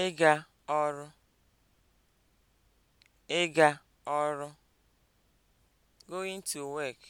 ịga ọrụ ịga ọrụ (going to work)